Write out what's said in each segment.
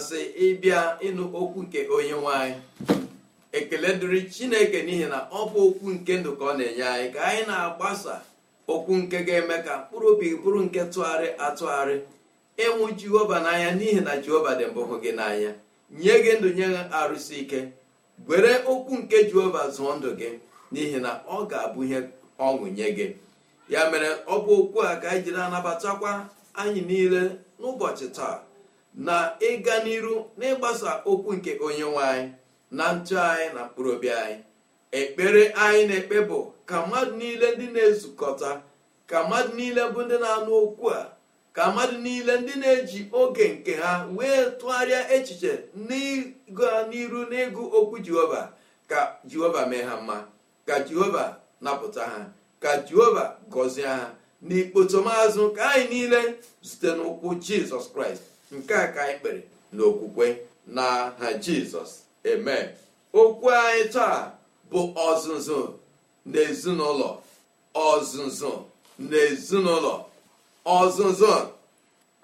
masị ịbịa ịnụ okwu nke onye nwanyị ekele dịrị chineke n'ihi na ọ bụ okwu nke ndụ ka ọ na-enye anyị ka anyị na-agbasa okwu nke ga-eme ka mkpụrụ obi bụrụ nke tụgharị atụgharị ịnwụ jehova n'anya n'ihi na jehova dị mbụ hụ gị n'anya nye gị ndụ nye arụsị ike gwere okwu nke jehova zụọ ndụ gị n'ihi na ọ ga-abụ ihe ọṅụ nye gị ya mere ọ bụ okwu a ka anyị jiri anabatakwa anyị niile n'ụbọchị taa na ịga n'iru na ịgbasa okwu nke nwe anyị na ntụ anyị na mkpụrụ obi anyị ekpere anyị na-ekpe bụ ka mmadụ niile ndị na-ezukọta ka mmadụ niile bụ ndị na-anụ okwu a ka mmadụ niile ndị na-eji oge nke ha wee tụgharịa echiche n'ịga n'iru n'ịgụ okwu jehova ka jehova mee ha mma ka jehova napụta ha ka jehova gọzie ha n'ikpoto maazụ ka anyị niile zute n'ụkwụ jizọs kraịst nke a ka anyị kpere n'okwukwe n'aha jizọs eme okwu anyị taa bụ ọzụzụ n'ezinụlọ ọzụzụ n'ezinụlọ ọzụzụ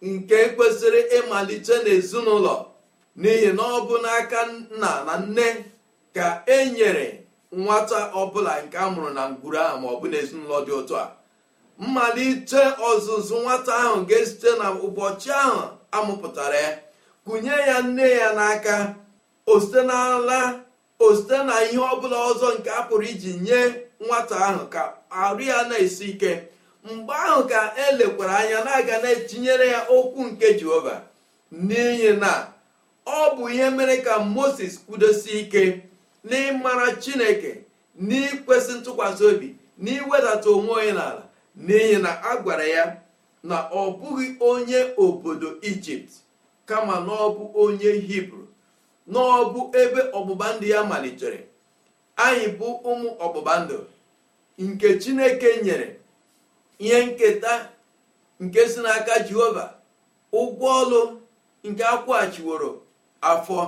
nke kwesịrị ịmalite n'ezinụlọ n'ihi na ọ bụ n'aka nna na nne ka e nyere nwata ọbụla nke a mụrụ na ngwuru ahụ ma ọ bụ n'ezinụlọ dị otu a mmalite ọzụzụ nwata ahụ ga-esite na ahụ amụpụtara ya kụnye ya nne ya n'aka osite n'ala osite na ihe ọbụla ọzọ nke a pụrụ iji nye nwata ahụ ka arụ ya na-esi ike mgbe ahụ ka elekwara anya na-aga na-etinyere ya okwu nke jehova n'ihi na ọ bụ ihe mere ka moses kwudosie ike n'ịmara chineke n'ikwesị ntụkwasị obi n'iwedata onwe onye n'ala n'ihi na a gwara ya na ọ bụghị onye obodo ijipt kama na ọ bụ onye hibru n'ọbụ ebe ọgbụgba ndụ ya malitere anyị bụ ụmụ ọgbụgba ndụ nke chineke nyere ihe nketa nke si n'aka jehova ụgwọ ọlụ nke akwụghachiworo afọ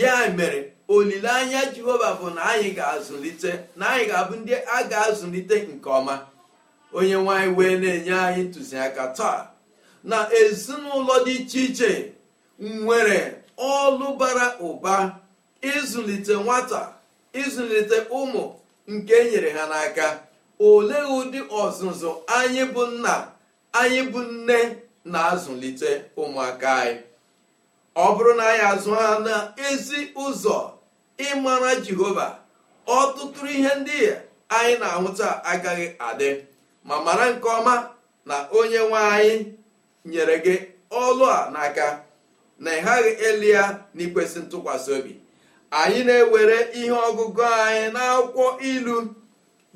ya mere olileanya jehova bụ na anyị ga-azụlite na anyị ga-abụ ndị a ga-azụlite nke ọma onye nwanyị wee na-enye anyị ntụziaka taa na ezinụlọ dị iche iche nwere ọlụ bara ụba ịzụlite nwata ịzụlite ụmụ nke enyere ha n'aka olee ụdị ọzụzụ anyị bụ nna anyị bụ nne na-azụlite ụmụaka anyị ọ bụrụ na anyị azụ ha na ezi ụzọ ịmara jehova ọtụtụ ihe ndị anyị na-ahụta agaghị adị ma mara nke ọma na onye nwe anyị nyere gị ọlụ a n'aka na ị elu ya na ikwesị ntụkwasị obi anyị na-ewere ihe ọgụgụ anyị n'akwụkwọ ilu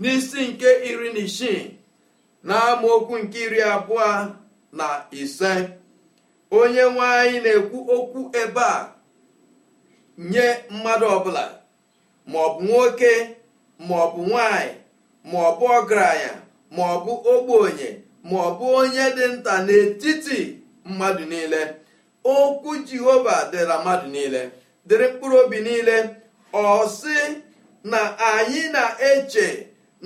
n'isi nke iri na isii na amaokwu nke iri abụọ na ise onye nwe anyị na-ekwu okwu ebe a nye mmadụ ọbụla maọbụ nwoke maọbụ nwanyị maọbụ ọgaranya ma ọ bụ ogbenye ma ọ bụ onye dị nta n'etiti mmadụ niile okwu jehova dịra mmadụ niile dịrị mkpụrụ obi niile ọ na anyị na-eche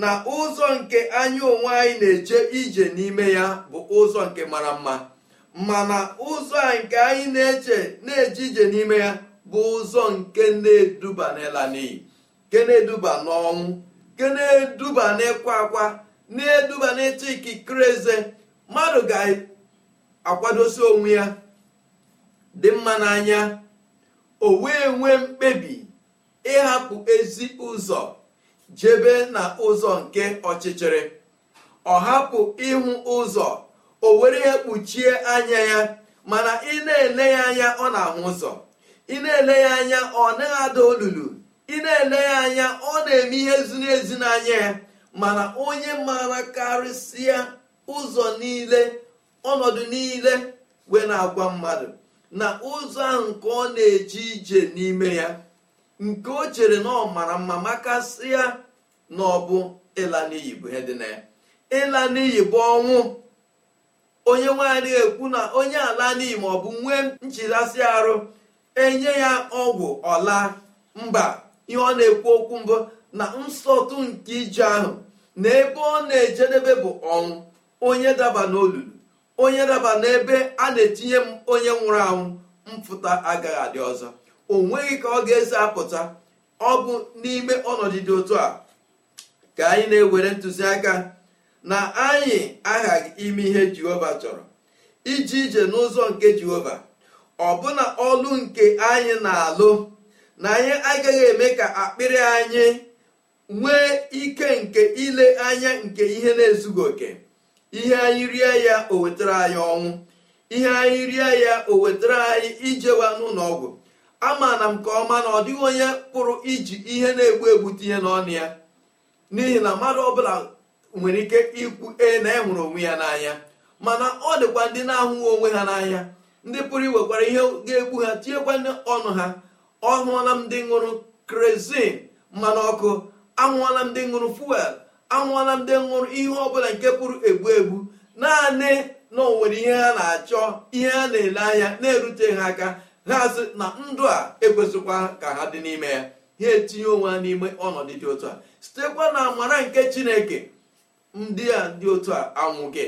na ụzọ nke anyị onwe anyị na-eche ije n'ime ya bụ ụzọ nke mara mma mana ụzọ nke anyị na-eche na-eje ije n'ime ya bụ ụzọ nke na-eduba n'ịla n'iyi nke na-eduba n'ọnwụ nke na-eduba n'ịkwa akwa na-eduba n'ịtụ ikikere eze mmadụ ga-akwadosi onwe ya dị mma n'anya o wee nwee mkpebi ịhapụ ezi ụzọ jebe na ụzọ nke ọchịchịrị ọ hapụ ịhụ ụzọ o were ya kpuchie anya ya mana ị na-ele ya anya ọ na-ahụ ụzọ ị na-ele ya anya ọ na ada olulu ị na-ele ya anya ọ na-eme ihe ziri n'anya ya mana onye maara karịsịa ụzọ niile ọnọdụ niile wee na-agwa mmadụ na ụzọ ahụ nke ọ na-eje ije n'ime ya nke o chere na ọ mara mma makasịa na ọ bụ ịla n'iyi bụ ihe dị ịla n'iyi bụ ọnwụ onye nwaanyị ekwu na onye ala n'iyi ma ọ bụ nwee nchidasị arụ enye ya ọgwụ ọla mba ihe ọ na-ekwu okwu mbụ na nsọtụ nke ije ahụ na ebe ọ na-ejedebe bụ ọnwụ onye daba n'olulu onye daba n'ebe a na-etinye m onye nwụrụ anwụ mpụta agaghị adị ọzọ o nweghị ka ọ ga-esi apụta ọ bụ n'ime ọnọdụ dị otu a ka anyị na-ewere ntụziaka na anyị aghaghị ime ihe jehova chọrọ iji ije n'ụzọ nke jehova ọbụna ọlụ nke anyị na-alụ na anyị agaghị eme ka akpịrị anyị nwee ike nke ile anya nke ihe na-ezughị oke ihe anyị rie ya o wetara anyị ọnwụ ihe anyị rie ya o wetara anyị ijewa n'ụlọ ọgwụ ama m nke ọma na ọ dịghị onye pụrụ iji ihe na-egbu egbu tinye n'ọnụ ya n'ihi na mmadụ ọbụla nwere ike ikwu e na enwere onwe ya n'anya mana ọ dịkwa ndị na ahụ onwe ha n'anya ndị pụrụ iwekwara ihe ga-egbu ha tinyekwa ọnụ ha ọ hụla m ndị ṅụrụ krezin mmanụ ọkụ anwụọla ndị ṅụrụ fuel anwụọla ndị ṅụrụ ihe ọbụla nke pụrụ egbu egbu naanị na onwere ihe ha na-achọ ihe ha na-ele anya na-erute ha aka ha sị na ndụ a ekwesịkwa ka ha dị n'ime ya ha etinye onwe ha n'ime ọnọdụ dị otu a sitekwa na amara nke chineke ndị a dị otu a anwụghị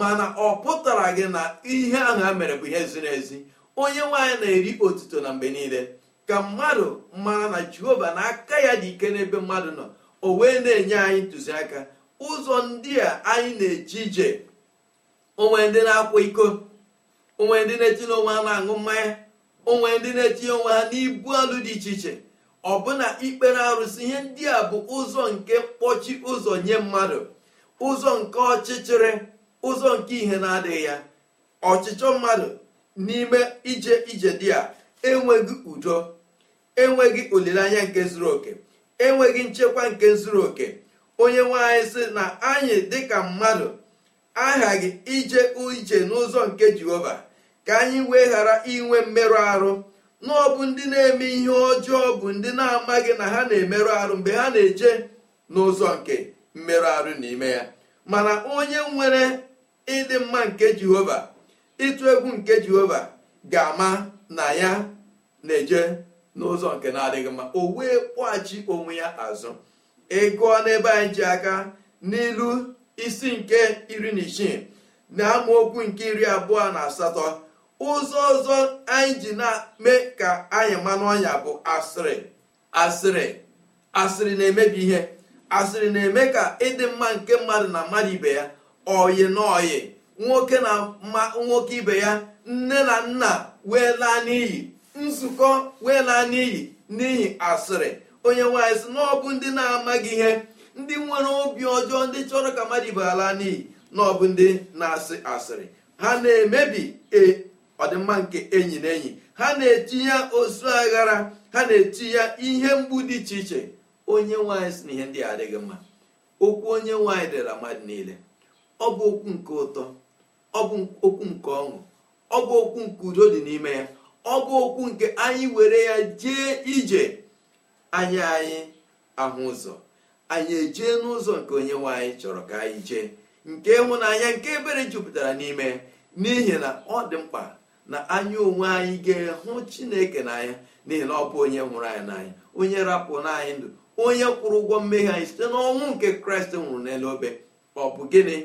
mana ọ pụtara gị na ihe ahụ ha mere bụ ihe ziri ezi onye nwaanyị na-eri otuto na mgbe niile ka mmadụ mara na jehova na aka ya dị ike n'ebe mmadụ nọ o wee na-enye anyị ntụziaka ụzọ ndị a anyị na-eji ije onwe ndị na-akwa iko onwe ndị na-etinye onwe ha na-aṅụ mmanya onwe ndị na-etinye onwe ha n'ibu alụ dị iche iche ọbụna ikpere arụsị ihe ndị a bụ ụzọ nke mkpọchi ụzọ nye mmadụ ụzọ nke ọchịchịrị ụzọ nke ihe na-adịghị ya ọchịchọ mmadụ n'ime ije ije dị a enweghị udo enweghị olileanya nke zuru oke enweghị nchekwa nke zuru oke onye nwe anyị sị na anyị dịka mmadụ aghaghị ije ije n'ụzọ nke jehova ka anyị wee ghara inwe mmerụ arụ na ọ bụ ndị na-eme ihe ọjọọ bụ ndị na-amaghị na ha na-emerụ arụ mgbe ha na-eje n'ụzọ nke mmerụ arụ n'ime ya mana onye nwere ịdị mma nke jehova ịtụ egwu nke jehova ga-ama na ya na-eje n'ụzọ nke na-adịghị mma o wee kpọghachi onwe ya azụ ịgụọ e n'ebe anyị ji aka n'ilu isi nke iri na isii na amaokwu nke iri abụọ na asatọ ụzọ ọzọ anyị ji na-eme ka anyị manụ ọnya bụ asịrị asịrị asịrị na-emebi ihe asịrị na-eme ka ịdị mma nke mmadụ na mmadụ ibe ya oyi na oyi nwoke na nwoke ibe ya nne na nna wee laa n'iyi nzukọ wee laa n'iyi n'ihi asịrị onye nwanyị sị na ọ bụ ndị na-amaghị ihe ndị nwere obi ọjọọ ndị chọrọ ka mmadụ ibe ala n'iyi na ọ bụ ndị na-asị asịrị ha na-emebi e, ọdịmma nke enyi na enyi ha na-eti ya ozu aghara ha na-eti ya ihe mgbu dị iche iche onye nwanyị si na ihe ndị adịghị mma okwu onye nwanyị dịra mmadụ niile ọ bụ okwu nke ụtọ ọ bụ okwu nke ọṅụ ọ bụ okwu nke udo dị n'ime ya ọ bụ okwu nke anyị were ya jee ije anyị anyị ahụ ụzọ anyị ejee n'ụzọ nke onye nwe anyị chọrọ ka anyị jee nke ịhụnanya nke ebere jupụtara n'ime n'ihi na ọ dị mkpa na anyị onwe anyị ga-ehụ chineke n'anya n'ihi na ọ bụ onye hụrụ anyị n'anya onye rapụ n'anyị ndụ onye kwụrụ ụgwọ mmehie anyị site n'ọnwụ nke kraịst nwụrụ n'elu obe ọ bụ gịnị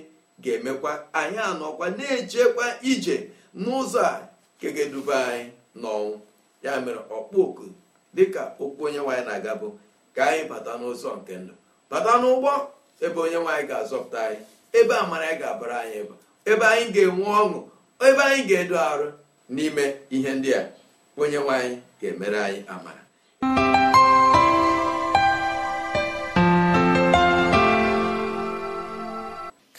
ga-emekwa anyị anọkwa na-ejekwa ije n'ụzọ a nke ga-eduba anyị n'ọnwụ ya mere ọkpụ oku dịka okwu onye nwaanyị na-aga bụ ka anyị bata n'ụzọ nke ndụ bata n'ụgbọ ebe onye nwaanyị ga-azọpụta anyị ebe amara anyị ga-abara anyị ịba ebe anyị ga-enwe ọṅụ ebe anyị ga-edo arụ n'ime ihe ndị a onye nwaanyị ga-emere anyị amara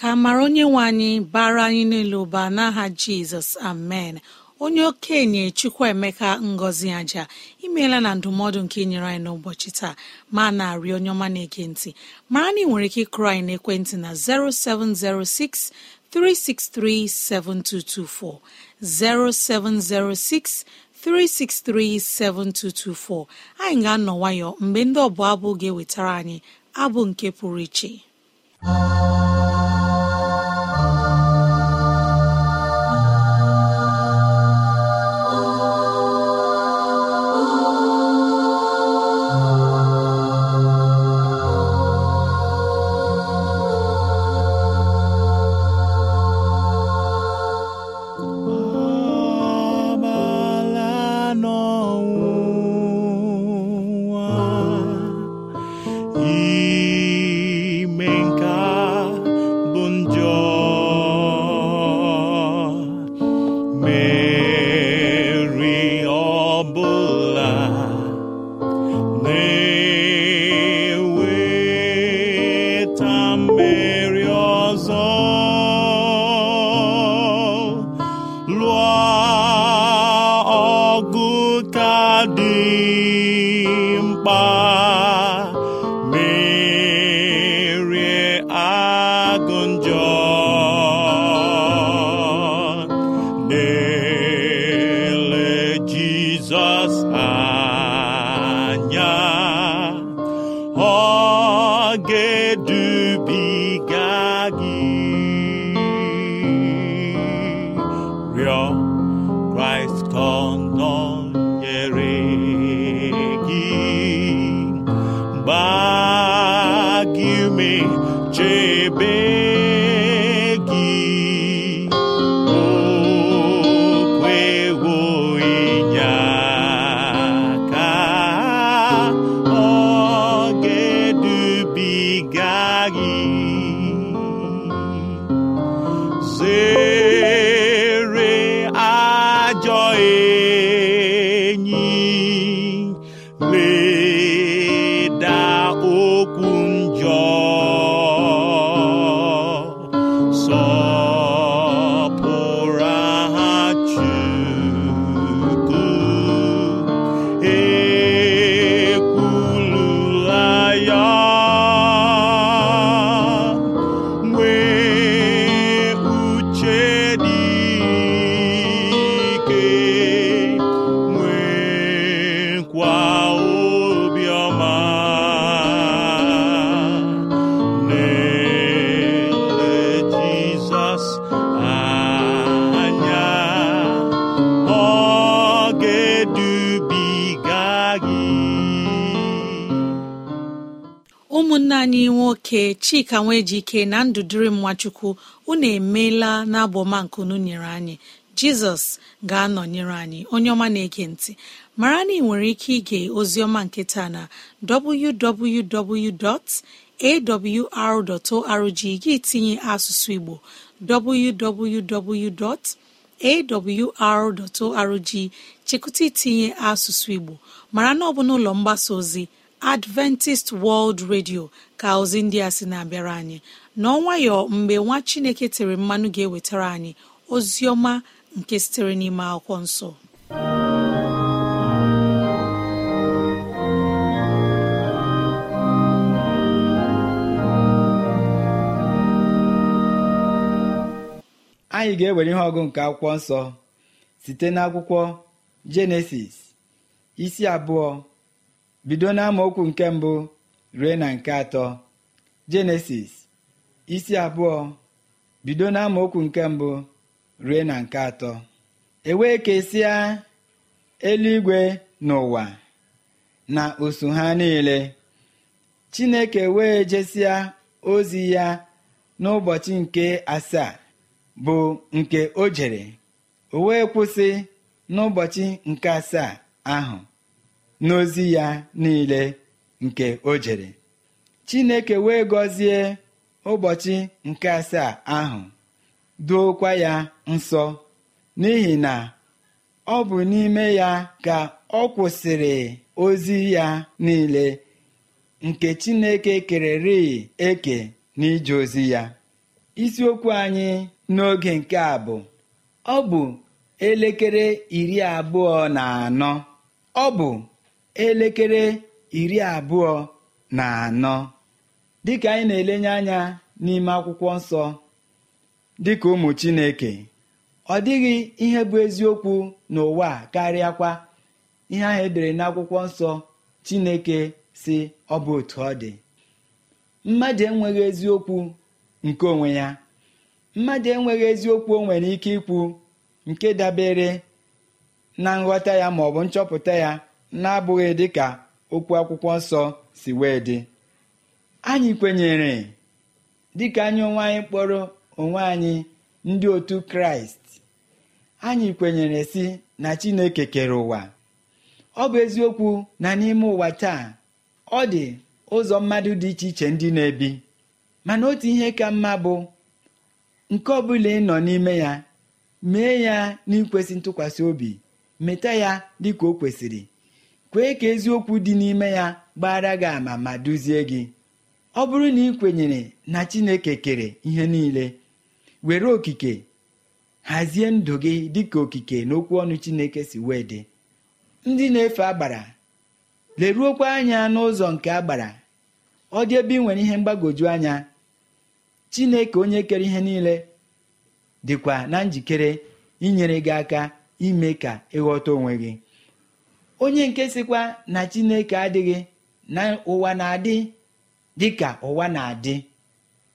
ka mara onye nwe anyị bara anyị niile ụba n'aha jizọs amen onye okenye chukwuemeka ngozi aja imeela na ndụmọdụ nke nyere anyị n'ụbọchị taa ma na-arị onye ọma na-ege ntị mara na ị nwere ike ịkụrụ anyị n'ekwentị na 0706 363 7224 0706 363 7224 anyị ga-anọ nwayọ mgbe ndị ọbụla abụ ga-ewetara anyị abụ nke pụrụ iche Bye. anyị nwoke chika nwejike na ndụ dịrị nwachukwu unu emeela na abọmankunu nyere anyị jizọs ga-anọnyere anyị onye ọma na-ege ntị mara na ị nwere ike ige oziọma nketa na www.awr.org gị tinye asụsụ igbo www.awr.org chekụta itinye asụsụ igbo mara na ọ bụ n'ụlọ mgbasa ozi adventist world radio ka ozi ndị a sị na-abịara anyị n'ọnwayọ mgbe nwa chineke tere mmanụ ga-ewetara anyị ozi ọma nke sitere n'ime akwụkwọ nsọ anyị ga-ewere ihe ọgụ nke akwụkwọ nsọ site n'akwụkwọ jenesis isi abụọ bido okwu nke mbụ rue na nke atọ jenesis isi abụọ bido n'amaokwu nke mbụ rue na nke atọ ewee kesịa eluigwe n'ụwa na osu ha niile chineke wee jesịa ozi ya n'ụbọchị nke asaa bụ nke o jere o wee kwụsị n'ụbọchị nke asaa ahụ n'ozi ya niile nke o jere chineke wee gọzie ụbọchị nke asaa ahụ duokwa ya nsọ n'ihi na ọ bụ n'ime ya ka ọ kwụsịrị ozi ya niile nke chineke kererị eke n'ije ozi ya isiokwu anyị n'oge nke a bụ ọ bụ elekere iri abụọ na anọ ọ bụ elekere iri abụọ na anọ dịka anyị na-elenye anya n'ime akwụkwọ nsọ dịka ụmụ Chineke ọ dịghị ihe bụ eziokwu n'ụwa karịa karịakwa ihe ahụ edere n'akwụkwọ nsọ Chineke si ọ bụ otu ọ dị mmadụ enweghị eziokwu nke onwe ya mmadụ enweghị eziokwu o nwere ike ikwu nke dabere na nghọta ya maọbụ nchọpụta ya na-abụghị ka okwu akwụkwọ nsọ si wee dị anyị kwenyere dị ka anyị onwe anyị kpọrọ onwe anyị ndị otu kraịst anyị kwenyere si na chineke kere ụwa ọ bụ eziokwu na n'ime ụwa taa ọ dị ụzọ mmadụ dị iche iche ndị na-ebi mana otu ihe ka mma bụ nke ọ bụla ị nọ n'ime ya mee ya n'ikwesị ntụkwasị obi meta ya dị ka o kwesịrị kwee ka eziokwu dị n'ime ya gbara gị ama ma duzie gị ọ bụrụ na ị kwenyere na chineke kere ihe niile were okike hazie ndụ gị dị ka okike n'okwu ọnụ chineke si wee dị ndị na-efe agbara leruokwa anya n'ụzọ nke agbara ọ dị ebe ị nwere ihe mgbagwoju anya chineke onye kere ihe niile dịkwa na njikere inyere gị aka ime ka ịghọta onwe gị onye nke sịkwa na chineke adịghị na ụwa na-adị dịka ụwa na-adị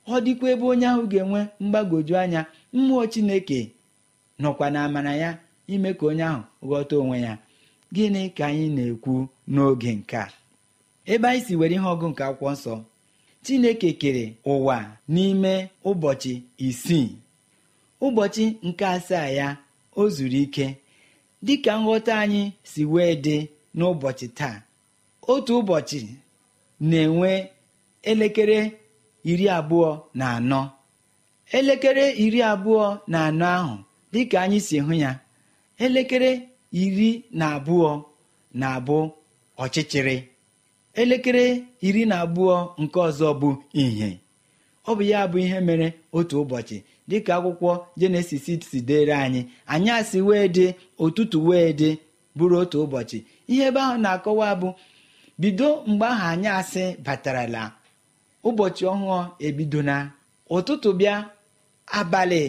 ọ dịkwa ebe onye ahụ ga-enwe mgbagwoju anya mmụọ chineke nọkwa na amara ya ime ka onye ahụ ghọta onwe ya gịnị ka anyị na-ekwu n'oge nke a ebe anyị si were ihe ọgụ nke akwụkwọ nsọ chineke kere ụwa n'ime ụbọchị isii ụbọchị nke asaa ya o zuru ike dịka nghọta anyị si wee dị n'ụbọchị taa otu ụbọchị na-enwe elekere iri abụọ na anọ elekere iri abụọ na anọ ahụ dịka anyị si hụ ya elekere iri na abụọ na-abụ ọchịchịrị elekere iri na abụọ nke ọzọ bụ ihe, ọ bụ ya bụ ihe mere otu ụbọchị dịka akwụkwọ jenesis si dere anyị asị wee dị ụtụtụ wee dị bụrụ otu ụbọchị ihe ebe ahụ na-akọwa bụ bido mgbe ahụ asị batarala ụbọchị ọhụụ na ụtụtụ bịa abalị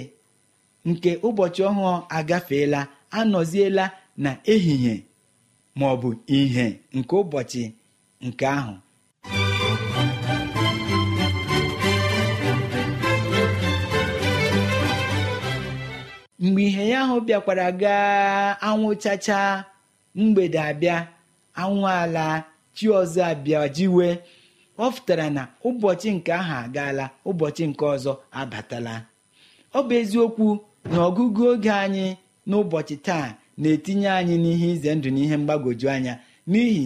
nke ụbọchị ọhụụ agafeela anọziela na ehihie ma ọ nke ụbọchị nke ahụ mgbe ihe ya ahụ bịakwara gaa anwụchacha mgbede abịa anwụ ala chi ọzọ abịa jiwe ọ fụtara na ụbọchị nke ahụ agaala ụbọchị nke ọzọ abatala ọ bụ eziokwu na ọgụgụ oge anyị n'ụbọchị taa na-etinye anyị n'ihe ize ndụ n'ihe mgbagwoju anya n'ihi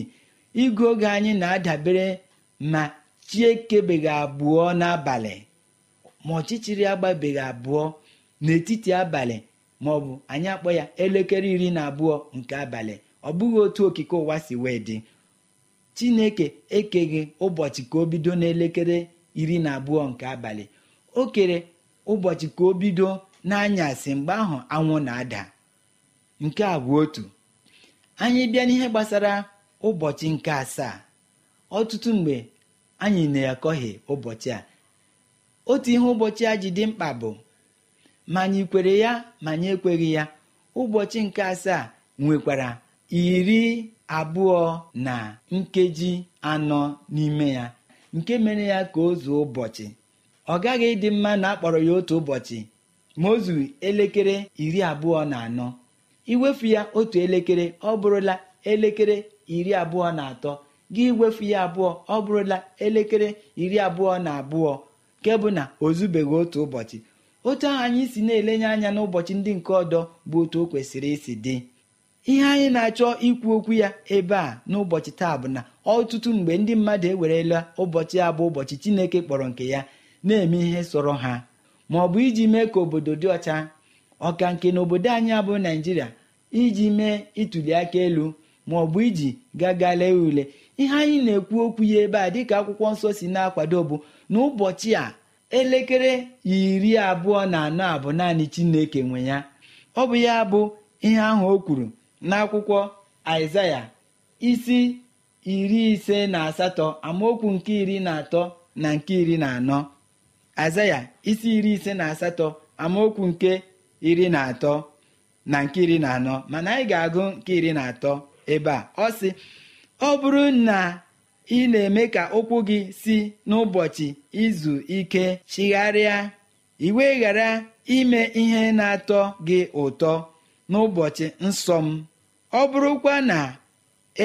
igụ oge anyị na-adabere ma chi ekebeghị abụọ n'abalị ma ọchịchịrị agbabeghị abụọ n'etiti abalị ma ọ bụ anyị akpọ ya elekere iri na abụọ nke abalị ọ bụghị otu okike ụwa si wee dị chineke ekeghị ụbọchị ka o bido n'elekere iri na abụọ nke abalị o kere ụbọchị ka o bido n'anyasị mgbe ahụ anwụ na-ada nke a bụ otu anyị bịa n'ihe gbasara ụbọchị nke asaa ọtụtụ mgbe anyị na-akọghị ụbọchị a otu ihe ụbọchị a ji dị mkpa bụ ma anyị kwere ya ma anyị ekweghị ya ụbọchị nke asaa nwekwara iri abụọ na nkeji anọ n'ime ya nke mere ya ka o zuo ụbọchị ọ gaghị ịdị mma na akpọrọ ya otu ụbọchị ma o zuru elekere iri abụọ na anọ iwefu ya otu elekere ọ bụrụla elekere iri abụọ na atọ gị iwefu ya abụọ ọ bụrụla elekere iri abụọ na abụọ nke bụ na o zubeghị otu ụbọchị otu ahụ anyị si na-elenye anya n'ụbọchị ndị nke ọdọ bụ otu o kwesịrị isi dị ihe anyị na-achọ ikwu okwu ya ebe a n'ụbọchị taa bụ na ọtụtụ mgbe ndị mmadụ ewerela ụbọchị a bụ ụbọchị chineke kpọrọ nke ya na-eme ihe sọrọ ha ma ọ bụ iji mee ka obodo dị ọcha ọka nke na obodo anyị abụ naijiria iji mee ịtụli aka elu ma ọ bụ iji gaga lee ule ihe anyị na-ekwu okwu ya ebe a dịka akwụkwọ nsọ si na-akwado bụ na ụbọchị a elekere iri abụọ na anọ a bụ naanị chineke nwe ya ọ bụ ya bụ ihe ahụ o kwuru n'akwụkwọ aịzaya isi iri ise na asatọ amaokwu nke iri na atọ na nke iri na anọ aịzaya isi iri ise na asatọ amaokwu nke iri na atọ na nke iri na anọ mana anyị ga-agụ nke iri na atọ ebe a ọ sị ọ bụrụ na ị na-eme ka okwu gị si n'ụbọchị izu ike chigharịa iwe ghara ime ihe na-atọ gị ụtọ n'ụbọchị nsọ m ọ bụrụkwa na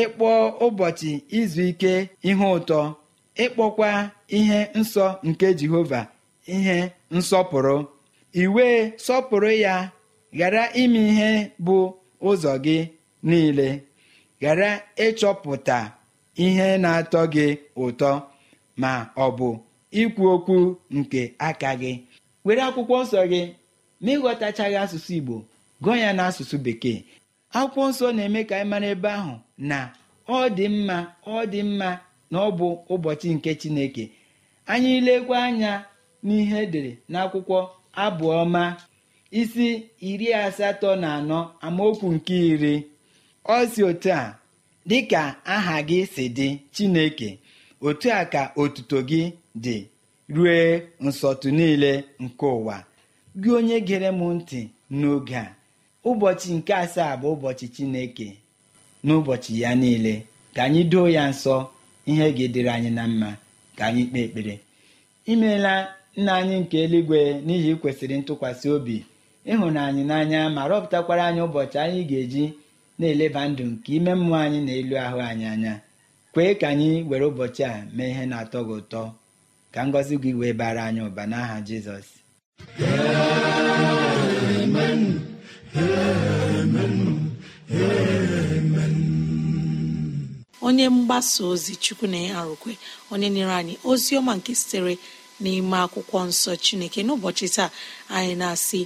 ịkpọ ụbọchị izu ike ihe ụtọ ịkpọkwa ihe nsọ nke jehova ihe nsọpụrụ iwe sọpụrụ ya ghara ime ihe bụ ụzọ gị niile ghara ịchọpụta ihe na-atọ gị ụtọ ma ọ bụ ikwu okwu nke aka gị were akwụkwọ nsọ gị ma ịghọtachaghị asụsụ igbo gụọ ya n'asụsụ bekee akwụkwọ nsọ na-eme ka anyị mara ebe ahụ na ọ dị mma ọ dị mma na ọ bụ ụbọchị nke chineke anyị lekwa anya n'ihe edere n'akwụkwọ abụọma isi iri asatọ na anọ amaokwu nke iri ọ si otu a dịka aha gị si dị chineke otu a ka otuto gị dị rue nsọtụ niile nke ụwa gị onye gere m ntị n'oge a ụbọchị nke asaa bụ ụbọchị chineke n'ụbọchị ya niile ka anyị doo ya nsọ ihe gị dịrị anyị na mma ka anyị kpee ekpere imeela nna anyị nke eluigwe n'ihi kwesịrị ntụkwasị obi ịhụnanyị n'anya ma rọpụtakwara anyị ụbọchị anyị ga-eji na-eleba ndụ nke ime mmụọ anyị na elu ahụ anyị anya kwee ka anyị were ụbọchị a mee ihe na-atọ gị ụtọ ka ngọzi gị wee bara anyị ụba n'aha Jizọs onye mgbasa ozi chukwu na ya arụkwe onye nyere anyị ozi ọma nke sitere n'ime akwụkwọ nsọ chineke n'ụbọchị taa anyị na-asị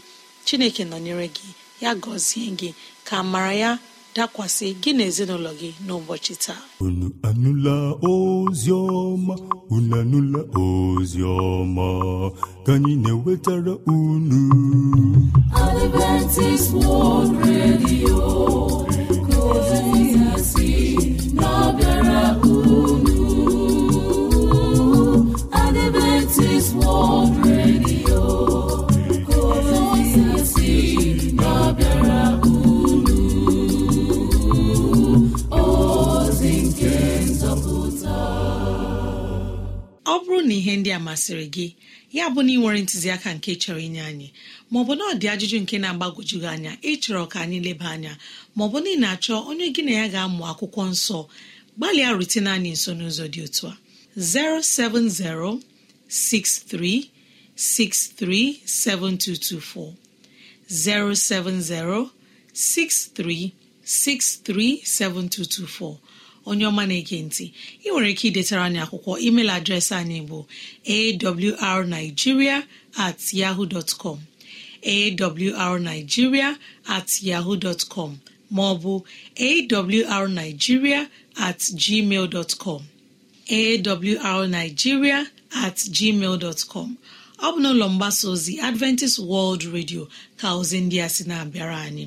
chineke nọnyere gị ya gọzie gị ka mara ya dakwasị gị na ezinụlọ gị n'ụbọchị taa unu anụla ozi unu anụla ozi ka anyị na-ewetara unu unu Adventist World na ihe ndị a masịrị gị ya bụ na ị nwere ntụziaka nke chọrọ inye anyị maọbụ na ọ dị ajụjụ nke na agbagojugị anya ịchọrọ ka anyị leba anya maọbụ na ị na-achọ onye gị na ya ga-amụ akwụkwọ nsọ gbalịa rutene anyị nso n'ụzọ dị otu a 07063637224 onye ọma na-ege ntị ị nwere ike idetara anyị akwụkwọ email adreesị anyị bụ awrnigeria at yahoo dot com awrnigeria at yahoo dot com ma ọ bụ awrnigeria at gmail com awrnigeria at gmail dot com ọ bụ n'ụlọ mgbasa ozi Adventist World Radio ka ozi ndị a sị na-abịara anyị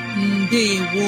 ndewo